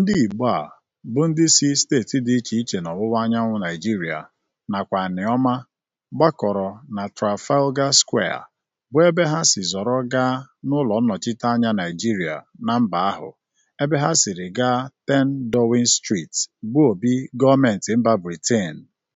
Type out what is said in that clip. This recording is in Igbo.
Ndị Igbo a bụ ndị si steeti dị iche iche anyanwụ Naịjirịa nakwa Nneoma gbakọrọ na Trafalgar Square bụ ebe ha si zọrọ gaa n'ụlọ nnọchiteanya Naịjirịa na mba ahụ ebe ha siri gaa 10 Downing Street bụ obi gọọmentị mba Britain.